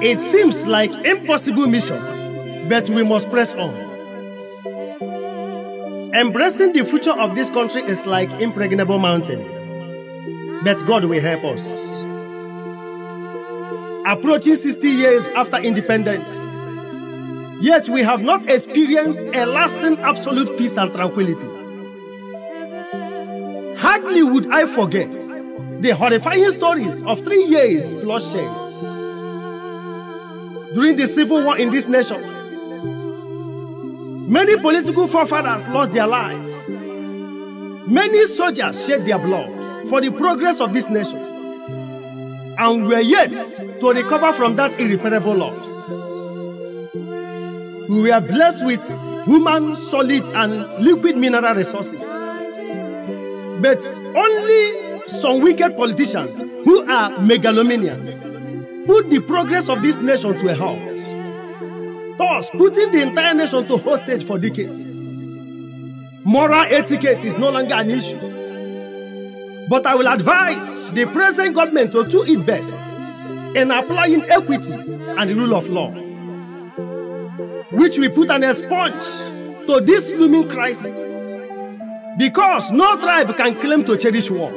It seems like impossible mission, but we must press on. Embracing the future of this country is like impregnable mountain. But God will help us. Approaching 60 years after independence, yet we have not experienced a lasting absolute peace and tranquility. Hardly would I forget the horrifying stories of three years bloodshed during the civil war in this nation Many political forefathers lost their lives. Many soldiers shed their blood for the progress of this nation. And we are yet to recover from that irreparable loss. We were blessed with human, solid, and liquid mineral resources. But only some wicked politicians who are megalomaniacs put the progress of this nation to a halt thus putting the entire nation to hostage for decades. Moral etiquette is no longer an issue. But I will advise the present government to do it best in applying equity and the rule of law, which will put an expunge to this looming crisis. Because no tribe can claim to cherish war.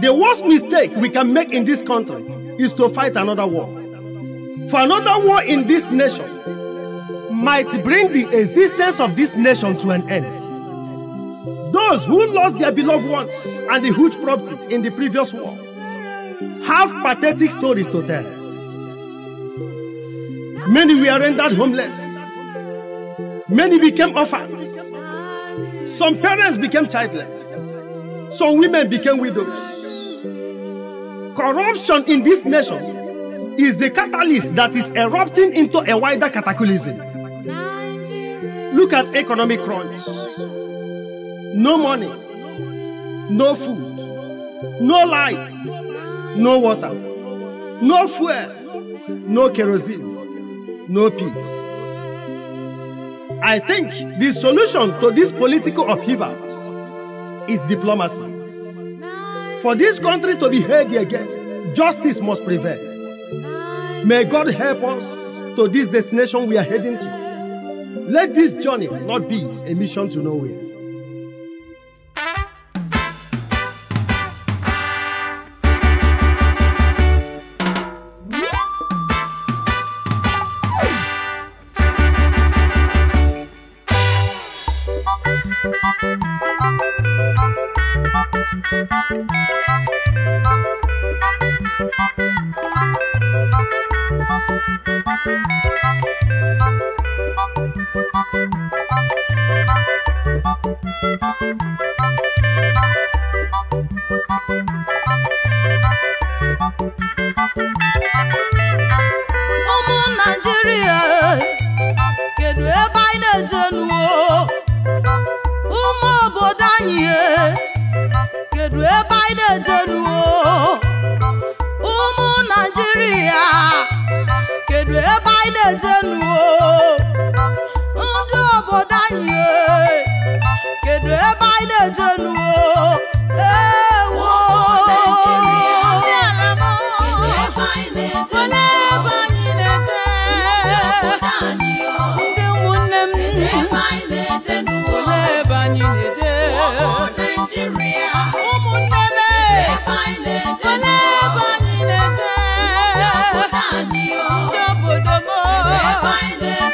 The worst mistake we can make in this country is to fight another war. For another war in this nation might bring the existence of this nation to an end. Those who lost their beloved ones and the huge property in the previous war have pathetic stories to tell. Many were rendered homeless. Many became orphans. Some parents became childless. Some women became widows. Corruption in this nation is the catalyst that is erupting into a wider cataclysm. Look at economic crunch. No money, no food, no lights, no water, no fuel, no kerosene, no peace. I think the solution to this political upheaval is diplomacy. For this country to be healthy again, justice must prevail. May God help us to this destination we are heading to. Let this journey not be a mission to nowhere.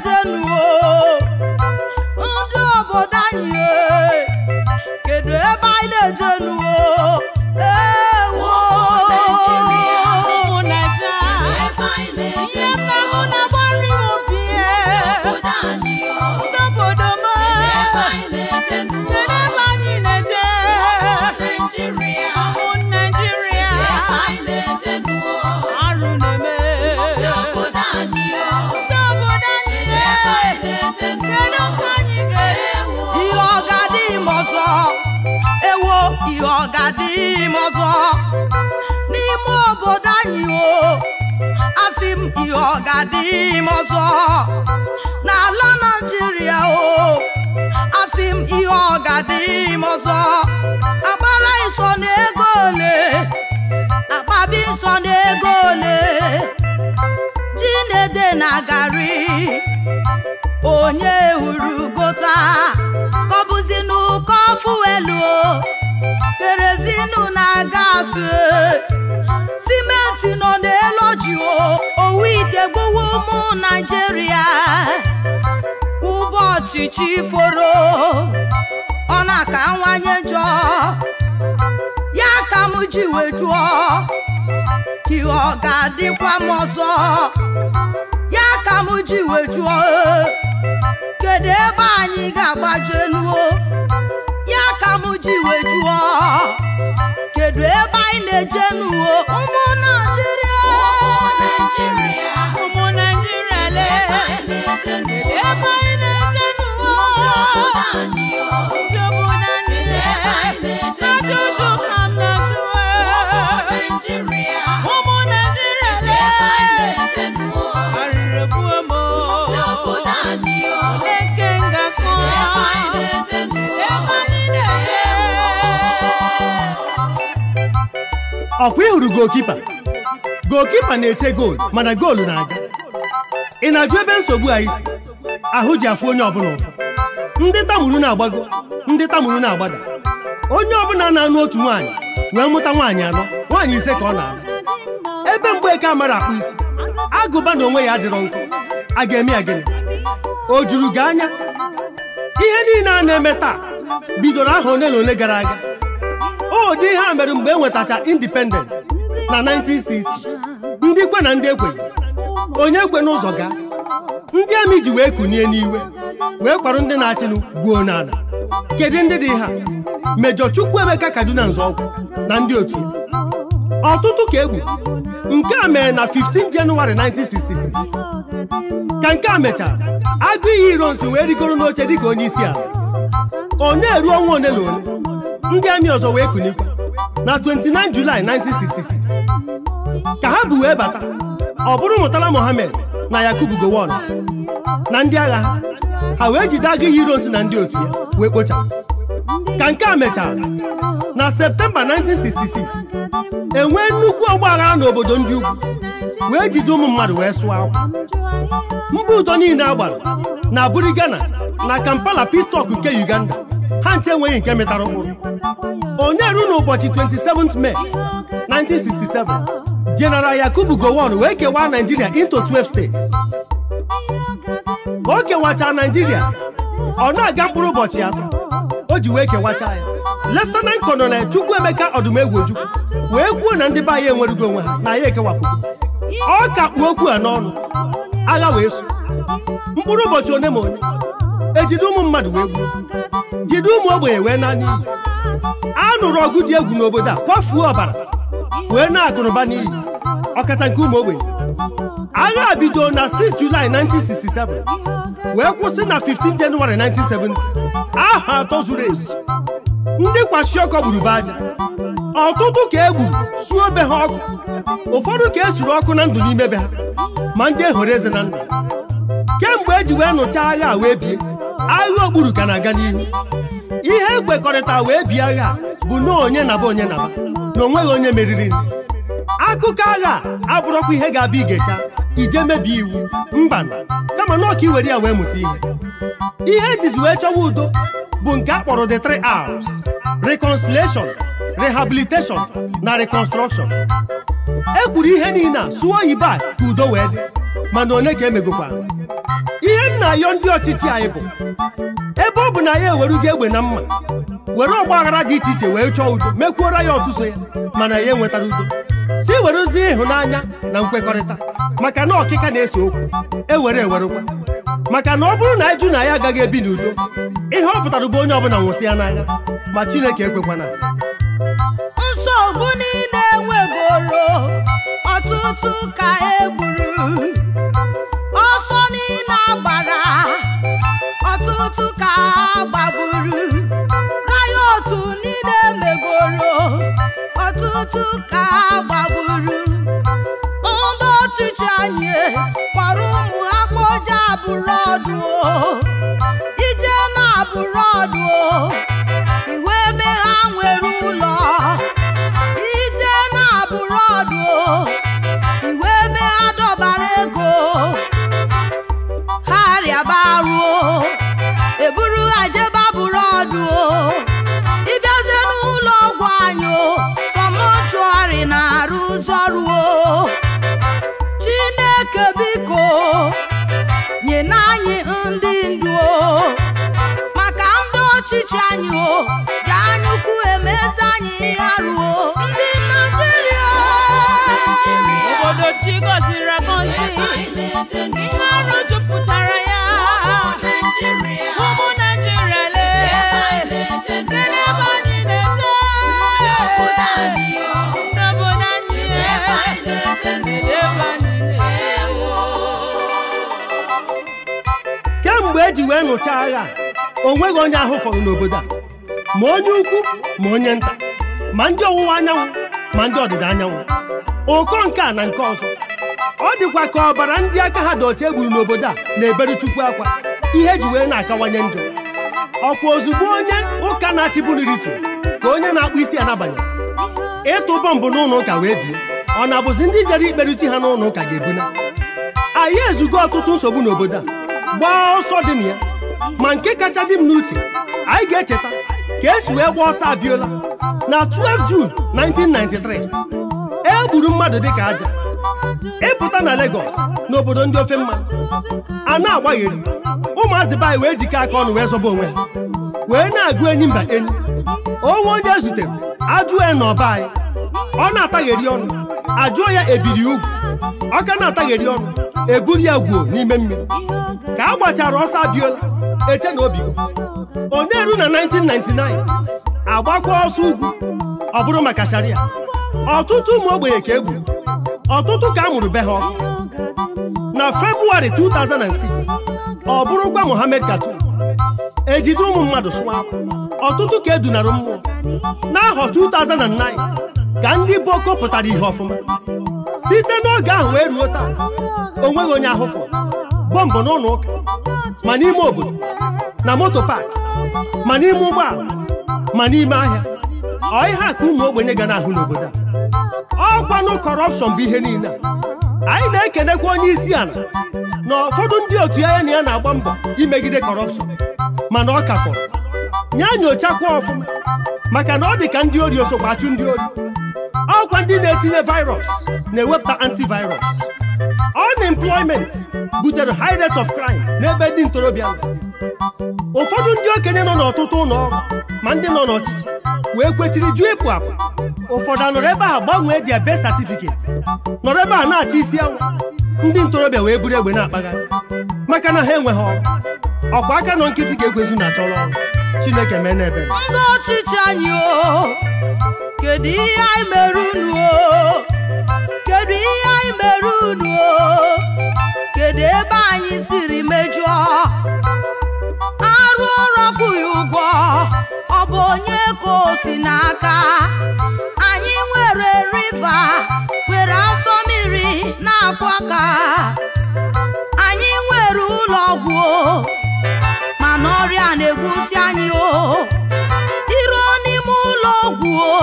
等着我。ọ ga-adị ime ọzọ n'ime obodo anyị o asị m ihe ọ ga-adị ime ọzọ n'ala Naịjirịa o asị m ihe ọ ga-adị ime ọzọ agbara iso na ole akpabi nso na ego ole ji na-ede na garị onye hụrụ gota fuelu kerozinu na-aga simenti nọ n'elu ji owu ite gbowo ụmụ naijiria ụbọchị chi foro ọ na-akawanye njọ ya ka m ji wee jụọ ka ọ ga-adịkwa m ọzọ ya ka m ji wee jụọ kedu ebe anyị ga-agbaje ji wee jụọ kedụ ebe anyị na-eje n'uwe ọkwa ịhụrụ gokipa gokipa na-ete goolu mana goolu na-aga ị na-ajụ ebe nsogbu anyị si ahụ ji afụ onye ọbụla ụfụ ndị tamuru na-agbago ndị tamuru na-agbada onye ọbụla na-anụ otu nwaanyị wee mụta nwaanyị anọ nwaanyị ise ka ọ na anụ ebe mgbe mgbeke amara akpụ isi agụba na onwe ya adịrọ nkụ a ga-eme ya gịnị o juru gị anya ihe niile a na-eme taa bidoro aha ole na ole gara aga ụdị oh, ihe a mere mgbe e nwetacha independence na 1960 ndị kwe na ndị ekwe onye kwe n'ụzọ ga ndị amị ji wee kunie n'iwe wee kwarụ ndị na-achịnụ gwuo n'ala kedu ndị dị ha mejọ Chukwuemeka Kaduna Nzọụkwụ na ndị otu ọtụtụ ka egbu nke a mere na 15 Jenụwarị 1966 ka nke a mechara agụ iyi ironsi wee rigoro n'oche dịka onye isi ala ọ na-eru ọnwa ole na ole ndị amị ọzọ wee kunikwu na 29 Julaị 1966 ka ha bụ wee bata ọ bụrụ Murtala Mohammed na Yakubu Gowon na ndị agha ha wee jide agụ Heroes na ndị otu ya wee kpochapụ ka nke a mechara na Septemba 1966 enwee nnukwu ọgbaghara n'obodo ndị ugwu wee jide ụmụ mmadụ wee sụọ akwa mba ụtọ niile a gbara na Ghana na Kampala Pistọk nke Uganda ha nche enweghị nke metara ụkpụrụ onye ru n'ụbọchị 27 May 1967 General Yakubu Gowon wee kewaa Nigeria into 12 states ka o kewacha Nigeria ọ na-aga mkpụrụ ụbọchị atọ o ji wee kewacha ya Leftenant Kọnọnel Chukwuemeka Ọdụmegwu Ojukwu wee kwuo na ndị be anyị onwe ha na ya ekewapụgo ọ ka kpuo okwu a n'ọnụ agha wee so mkpụrụ ụbọchị one ma onye ejide ụmụ mmadụ wee gbuo jide ụmụ ogbenye wee na a nụrụ ọgụ dị egwu n'obodo a kwafuo ọbara wee na akụrụba n'iyi ọkacha nke ụmụ ogbenye agha bido na 6 Julaị 1967 wee kwụsị na 15 Jenụwarị 1970 aha atọ zuru ezu ndị kwashi ọkọ gburu be aja ọtụtụ ka e gburu suo be ha ọkụ ụfọdụ ka e ọkụ na ndụ n'ime be ha ma ndị ehoro eze na ndụ kemgbe e ji wee nụchaa agha wee bie agha ogburu ka na-aga n'ihu ihe ekwekọrịta wee bie agha bụ na onye naba onye naba na onweghị onye meriri akụkọ agha abụrọkwa ihe ga-abịa igecha ije mebie iwu mba kama na ọka iwere ya wee mụta ihe ihe ejizi wee chọwa udo bụ nke a kpọrọ the three R's reconciliation rehabilitation na reconstruction e kwuru ihe niile a sụọ oyibo a ka udo wee dị mana onye ka emegokwa na-ayọ ndị ọchịchị anyị bụ ebe ọ bụ na ya ewerugo egbe na mma were ọgba aghara dị iche iche wee chọọ udo mekwuora ya ọtụtụ ya mana ya enwetara udo si werezie ịhụnanya na nkwekọrịta maka na ọkịka na-ese okwu ewere ewerekwa maka na ọ bụrụ na ịjụ na ya agaghị ebi n'udo ihe ọ pụtara bụ onye ọbụla nwụsị ya n'agha ma Chineke ekwekwana nsogbu niile nwegoro ọtụtụ ka e gburu otu ka a gbagburu riot niile megoro ọtụtụ ka a ndị ndu maka ndị ọchịchị anyị o ji anyụkwu emezi anyị ihe ndị Naijiria na mgbe eji wee nụcha agha o nweghị onye ahụ fọrọ n'obodo a ma onye ukwu ma onye nta ma ndị ọwụwa anyanwụ ma ndị ọdịda anyanwụ ụkọ nke a na nke ọzọ ọ dịkwa ka ọbara ndị aka ha dị otu egburu n'obodo a na-ebere chukwu akwa ihe ji wee na-akawanye njọ ọkwa ozugbo onye ụka na tu ka onye na-akpụ isi anabanye ịtụ bọmbụ n'ụlọ ụka wee bie ọ na-abụzi ndị jere ikperuchi ha n'ụlọ ụka ga-ebuna anyị ezugo ọtụtụ nsogbu n'obodo a gbaa ọsọ dị na ya ma nke kacha dị m n'uche anyị ga-echeta ka esi wee gbaa ọsọ abiola na 12 jun 1993 e gburu mmadụ dịka aja ịpụta na Lagos n'obodo ndị ofe mma a na-agbagheri ụmụazị baanyị wee jikọ aka ọnụ wee zọba onwe ha wee na-agụ enyi mba enyi onwe onye zutere ajụọ ya n'ọba anyị ọ na-atagheri ọnụ ajụọ ya ebiri ugwu ọ ka na-atagheri ọnụ eburu ya gwuo n'ime mmiri ka a gbachara ọsọ abiola eche na obi onye na 1999 agbakwa ọsọ ugwu ọ bụrụ maka sharia ọtụtụ ụmụ ogbenye ka egwu, ọtụtụ ka a mụrụ be ha ọkụ na Febụwarị 2006 ọ bụrụkwa Mohammed Katu ejide ụmụ mmadụ sụwa ọtụtụ ka edunara mmụọ n'ahọ 2009 ka ndị boko pụtara ihe ọfụma site n'oge ahụ wee ruo taa o nweghị onye ahụfọ bọmbụ n'ụlọ ụka ma n'ime obodo na moto paakị ma n'ime ụgbọala ma n'ime ahịa ọ ihe ka ụmụ ogbenye ga na-ahụ n'obodo a ọkwanụ kọrọpshọn bụ ihe niile a anyị na-ekenekwa onye isi ala na ụfọdụ ndị otu ya na ya na-agba mbọ imegide kọrọpshọn mana ọ ka fọrọ nye nyochakwa ọfụma maka na ọ dị ka ndị ori osokwa achụ ndị ori ọkwa ndị na-etinye virus na-ewepụta antivirus unemployment butere high rate of crime n'ebe ndị ntorobịa ụfọdụ ndị okenye nọ n'ọtụtụ ụlọ ọrụ ma ndị nọ n'ọchịchị wee kwechiri jụọ ịpụ apụ ụfọdụ anọrọ ebe a gbanwee dia be satifiketi nọrọ ebe a na-achị isi anwụ ndị ntorobịa wee buru egbe na-akpaghasị maka na ha enweghị ọrụ ọkwa aka nọ nkịtị ga-egwezu na achọrọ ọrụ Chineke mee n'ebe kedu ihe anyị kedu ihe mere unu kedu ebe anyị siri mejụọ arụ ọrụ kwụghị ụgwọ ọ bụ onye ka o si n'aka anyị nwere riva nwere asọ mmiri na akwọ ka anyị nwere ụlọ ọgwụ mana ọrịa na-egwusi anyị o iruo n'ime ụlọ ọgwụ o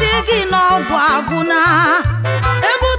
sị gị na ọgwụ agwụna ebe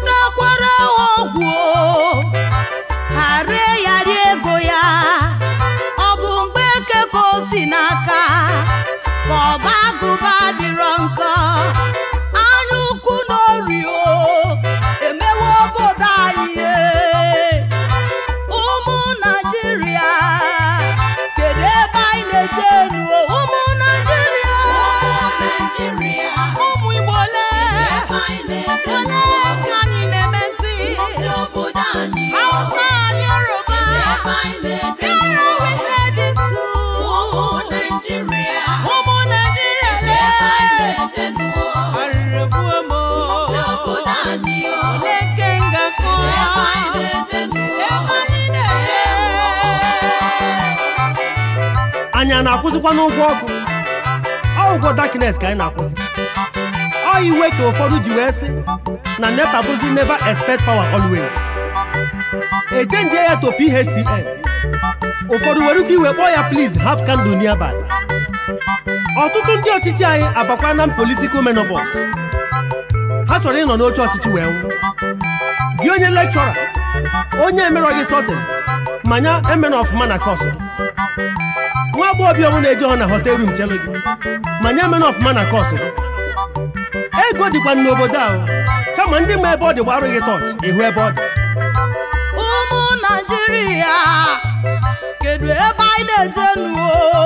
anyị a na-akwụsịkwa n'ụgwọ ọkụ ọ ụgwọ darkness ka anyị na-akwụsị ọ iwe ka ụfọdụ ji wee sị na nepa bụzi neva expect power always echenjie ya to PHCN ụfọdụ were ike iwe kpọọ ya please haf candle nearby ọtụtụ ndị ọchịchị anyị abakwa na political menobos. ha chọrọ ịnọ n'oche ọchịchị wee nwụ gị onye lekchọra onye emerọ gị sọtin manya emen ọfụma na kọsụ nwa agbọghọbịa ọnwụ na eji ọ na hotel room chere gị ma nye mana ọfụma na kọsụ ego dịkwa n'obodo ahụ kama ndị ma ebe ọ dị gbarụ gị tọọchị ịhụ ebe ọ dị ụmụ naijiria kedu ebe anyị na-eje nuo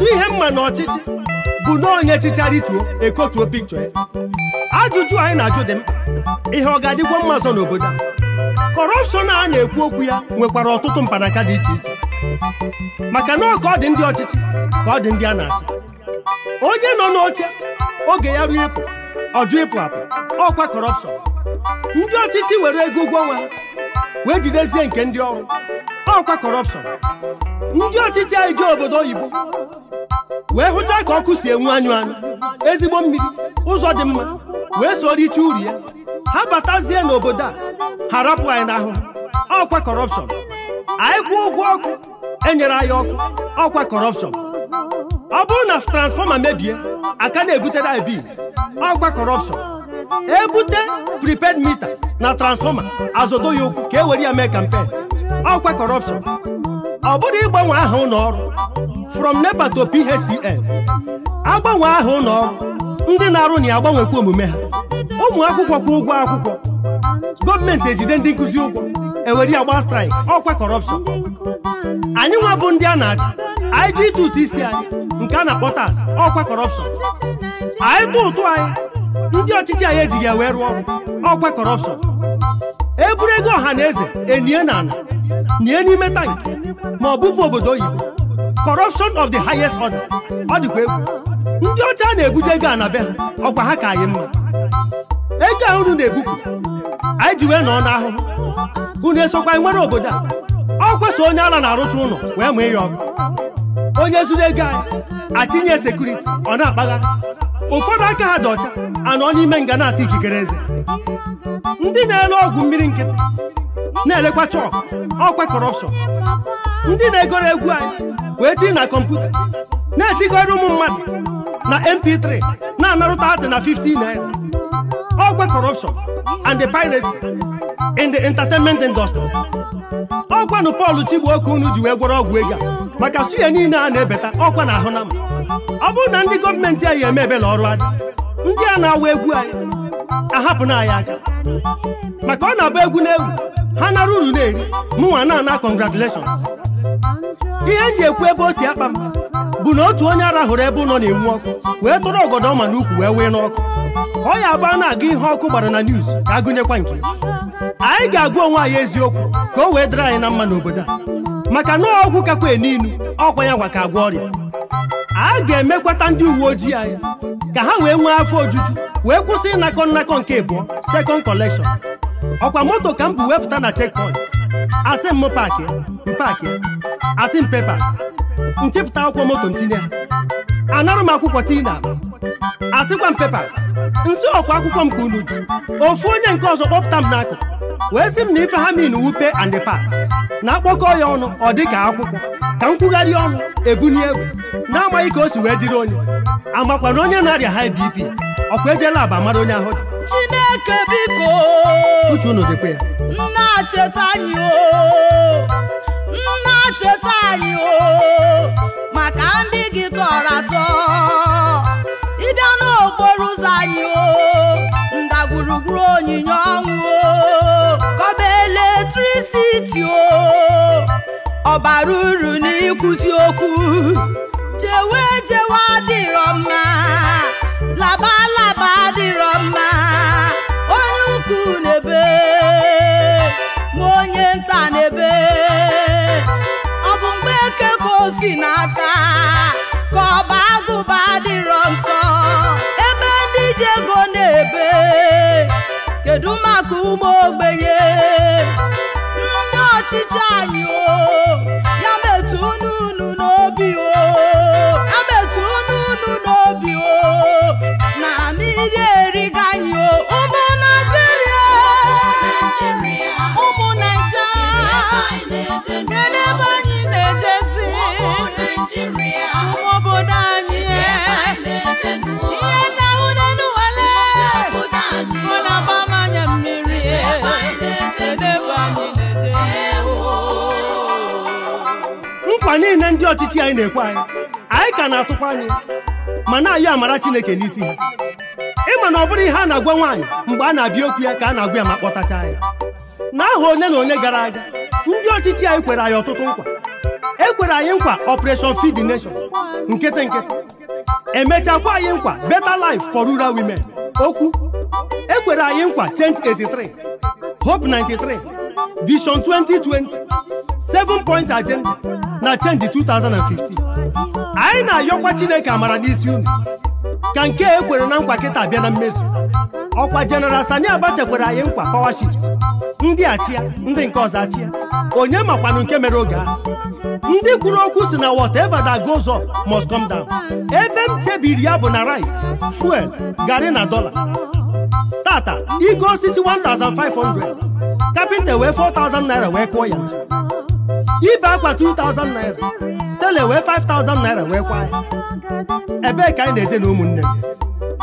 otu ihe mma na ọchịchị bụ na onye chịchara ekotuo pikchọ ya ajụjụ anyị na-ajụ dị mkpa ihe ọ ga-adịkwa mma ọzọ n'obodo a kọrọpshọn a na-ekwu okwu ya nwekwara ọtụtụ mkpanaka dị iche iche maka na ọ ọ dị ndị ọchịchị ka ọ dị ndị a na-achị onye nọ n'oche oge ya ruo ịpụ ọjụ ịpụ apụ ọkwa kọrọpshọn ndị ọchịchị were ego ụgwọ ọnwa wee jidezie nke ndị ọrụ ọkwa kọrọpshọn ndị ọchịchị anyị jee obodo oyibo wee hụcha ka ọkụ si enwu anyụ anyụ ezigbo mmiri ụzọ dị mma wee soro iche uru ya ha batazie n'obodo a harapụ anyị n'ahụ ọkwa kọrọpshọn anyị kwụọ ụgwọ ọkụ enyere anyị ọkụ ọkwa kọrọpshọn ọ bụrụ na transfọma mebie aka na-ebutere anyị bil ọkwa kọrọpshọn ebute priped mita na transfọma azodo ya ụkwụ ka e were ya mee kampen ọkwa kọrọpshọn ọ bụrụ ịgbanwe aha ụlọọrụ from NEPA to agbanwe aha ụlọọrụ ndị na-arụ na ya agbanwekwa omume ha ụmụ akwụkwọ kwụ ụgwọ akwụkwọ gọọmenti ejide ndị nkụzi ụgwọ ewere ya gba straịk ọkwa kọrọpshọn anyị nwa bụ ndị a na-achị anyị ji ịtụ ụtụ isi anyị nke a na-akpọ tas ọkwa kọrọpshọn anyị tụ ụtụ anyị ndị ọchịchị anyị ejighị ya wee rụọ ọrụ ọkwa kọrọpshọn eburu ego ọha na eze enie na ala nie n'ime tankị ma ọ bụpụ obodo oyibo corruption of the highest order ọ dịkwa egwu ndị ọcha na-ebute ego a na be ha ọkwa ha ka anyị mma ego a unu na-ebupụ anyị ji wee nọọ n'ahụhụ unu esokwa nwere obodo a ọ kwesị onye ala na-arụcha ụlọ wee ma ya ọkụ onye zuru ego anyị atinye sekuriti ọ na-akpagharị ụfọdụ aka ha dị ọcha anọ n'ime nga na-ata ikikere eze ndị na-ere ọgwụ mmiri nkịtị na-elekwa chọk ọkwa kọrọpshọn ndị na-egoro egwu anyị wee tinye na kọmputa na-etikọrọ ụmụ mmadụ na mp3 na-anarụta atị na 15 naira ọgwa Kọrọpshọn and the piracy in the entertainment industry ọkwa nụ Paul Chigbo oke unu ji wee gwọrọ ọgwụ ego maka suya niile a na-ebeta ọkwa na ahụ na mma ọ bụrụ na ndị gọọmenti anyị eme ebele ọrụ adị ndị a na-awa egwu anyị ahapụna anyị aka maka ọ na-agba egwu na egwu ha nara uru na-eri mụnwa na-ana congratulations ihe m ji ekwu ebe o si akpa m bụ na otu onye arahụrụ ebe ụlọ na-enwu ọkụ wee tụrụ ọgọdọ ọma n'ukwu wee wee n'ọkụ ọ ya agba na-agụ ihe ọkụ gbara na niuz ka agụnyekwa nke anyị ga-agwa onwe anyị eziokwu ka o wee dịrị anyị na mma n'obodo a maka na ọgwụ kakwa eniinu ọkwa ya ka agwa ọrịa a ga-emekwata ndị uwe ojii anyị ka ha wee nwee afọ ojuju wee kwụsị ịnakọ nnakọ nke ịbụọ second collection ọkwa moto ka m bụ wepụta na checkpoint asị m paakị mpaakị asị m nchepụta akwụkwọ moto ntinye anarụ m akwụkwọ tii na asịkwa m pepas nsị ọkwa akwụkwọ m ka unu ji ofu onye nke ọzọ kpọpụta m n'akụ wee sị m na ife ha min wupe and pas na akpọkọ ya ọnụ ọ dị ka akwụkwọ ka m kwugharịa ọnụ ebunye egwu na-amaghị ka o si wee dịrị onye amakwa na onye na-arịa high ọkwa ejela aba mara onye ahụ Chineke uche unu dịkwa ya nna cheta anyị o maka ndị gị tọrọ atọ ịbịa n'okporo ụzọ anyị o ndagwurugwu onyinye ọnwụ o kọba eletrisiti o ọbara uru n'ịkwụsị okwu jewe jewe adịrọ mma laba laba adịrọ mma si n'ata ka ọba agụba dịrọ nkọ ebe ndị ji ego na-ebe kedu maka ụmụ ogbenye ndị ọchịchị anyị o ya metụ unu n'obi o ya metụ unu n'obi o na mmiri eriga anyị o ụmụ Naịjirịa ụmụ Naịjirịa nkwa niile ndị ọchịchị anyị na-ekwe anyị anyị ka na-atụkwa anyị ma na-ayọ amara Chineke n'isi ha ịma na ọ bụrụ ihe a na-agwa nwaanyị mgbe a na-abịa okwu ya ka a na-agwa ya ma kpọtacha ya n'aha onye na onye gara aga ndị ọchịchị anyị kwere anyị ọtụtụ nkwa ekwere anyị nkwa Operation Feed Nation nkịtị nkịtị emechakwa anyị nkwa "Beta lif for Rural Women okwu e kwere anyị nkwa Change 83 Hope 93 vision 2020 7 point agenda na chenji 2015 anyị na-ayọkwa chineke amara n'isi unu ka nke e kwere na nkwa kịta bịa na mmezu ọkwa jeneral Sani Abacha kwere anyị nkwa power shift ndị achịa ndị nke ọzọ achịa onye makwanụ nke mere oge ahụ ndị kwuru okwu si na whatever that goes up must come down ebe m chebiri ya bụ na rice fuel garri na dollar tata ike osisi 1500 kapịnta wee 4000 naira wee kụọ ya ntu ibe akwa 2000 naira tele wee 5000 naira wee kwa ya ebee ka anyị na-eje na ụmụnne m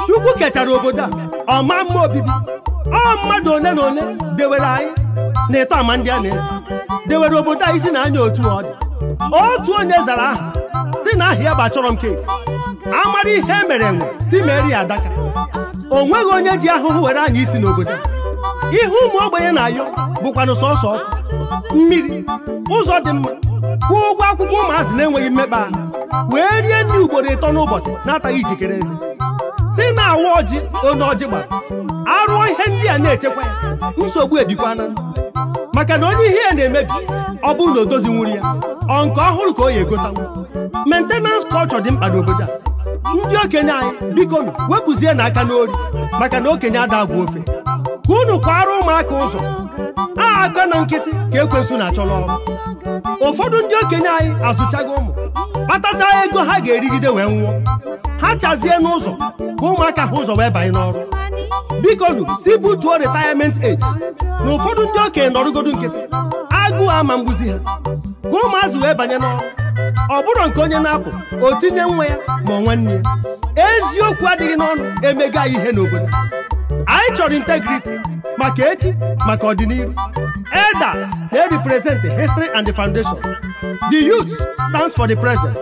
chukwu kechara obodo a ọma mma obibi ọ mmadụ ole na ole dewere anyị na ịtọ ama ndị a na eze dewere obodo a isi na anya otu ọ dị otu onye zara aha si na aha ya bụ achọrọ m kesi amara ihe e mere enwe si meri adaka o nweghị onye ji ahụhụ were anyị isi n'obodo ihe ụmụ ogbenye na-ayọ bụkwanụ sọsọ ọkụ mmiri ụzọ dị mma kwụọ ụgwọ akwụkwọ ụmụazị na-enweghị mmekpa ahụ wee rie nri ugboro ịtọ n'ụbọchị na-ataghị ikikere eze si na awa ọjị onye ọjị gbara arụọ ihe ndị a na-echekwa ya nsogbu ebikwana maka na onye ihe ya na-emebi ọ bụrụ na o dozi nwuri ya ọ nke ọhụrụ ka o ya egotanwu mentenans kọlchọ dị mkpa n'obodo a ndị okenye anyị biko nụ na n'aka n'ori maka na okenye ada agwa ofe ka unu kwara ụmụaka ụzọ a aka na nkịtị ka ekwensu na achọrọ ọrụ ụfọdụ ndị okenye anyị azụchaghị ụmụ kpatacha ego ha ga-erigide wee nwụọ ha chazie n'ụzọ ka ụmụaka ha ụzọ wee banye n'ọrụ biko nụ si butuo retirement age na ụfọdụ ndị okenye nọrụgodo nkịtị agụụ ama mgbuzi ha ka ụmụazụ wee banye n'ọrụ ọ bụrụ nke onye na-apụ o tinye nwa ya ma nwanne ya eziokwu adịghị n'ọnụ emega ihe n'obodo anyị chọrọ integrity maka echi maka ọdịnihu elders they represent the history and the foundation the youth stands for the present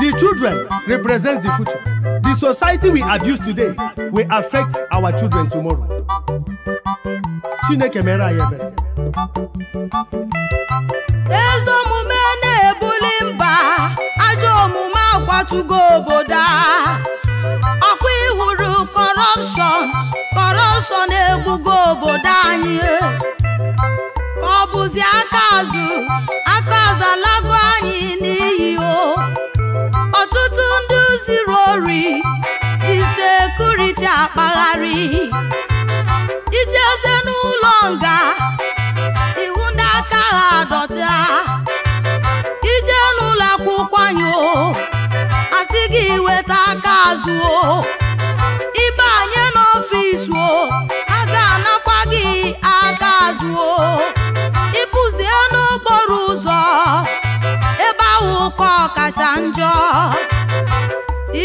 the children represents the future the society we abuse today will affect our children tomorrow chineke mere anyị ebere akpọtugo obodo a ọkwa ịhụrụ kọrọpshọn kọrọpshọn egbugo obodo anyị ọ bụzi aka azụ aka azụ alago anyị n'iyi o ọtụtụ ndị ziri ori ji sekuriti akpagharị ijeze n'ụlọ nga ihu ndị aka ha adọta ije n'ụlọ akwụkwọ asị gị weta aka azụ o ịbanye n'ọfịs o a ga-anakwa gị aka azụ o ịpụzie n'okporo ụzọ ebe ahụ ụkọ kacha njọ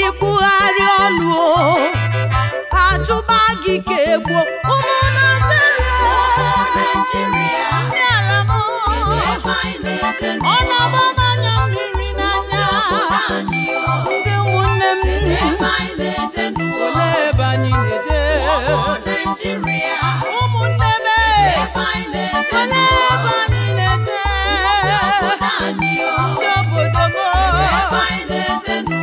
ikwugharị ọnụ o achụba gị ka egbuo ụmụ Naịjirịa Nigeria ụmụnne m ele ebe